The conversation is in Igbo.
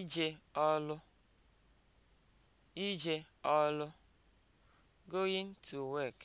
ije ọlụ ije ọlụ (going to work)